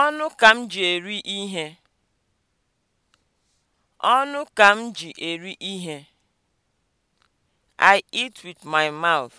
Ọnụ ka m ji eri ihe. Ọnụ ka m ji eri ihe. I eat with my mouth.